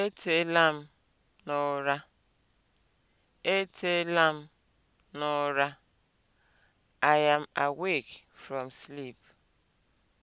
Eteela m n'ụra. Eteela m n'ụra. I am awake from sleep.